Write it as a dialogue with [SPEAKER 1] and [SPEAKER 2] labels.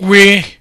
[SPEAKER 1] we